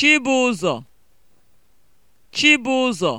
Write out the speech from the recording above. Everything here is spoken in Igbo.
Chibụzọ Chibụzọ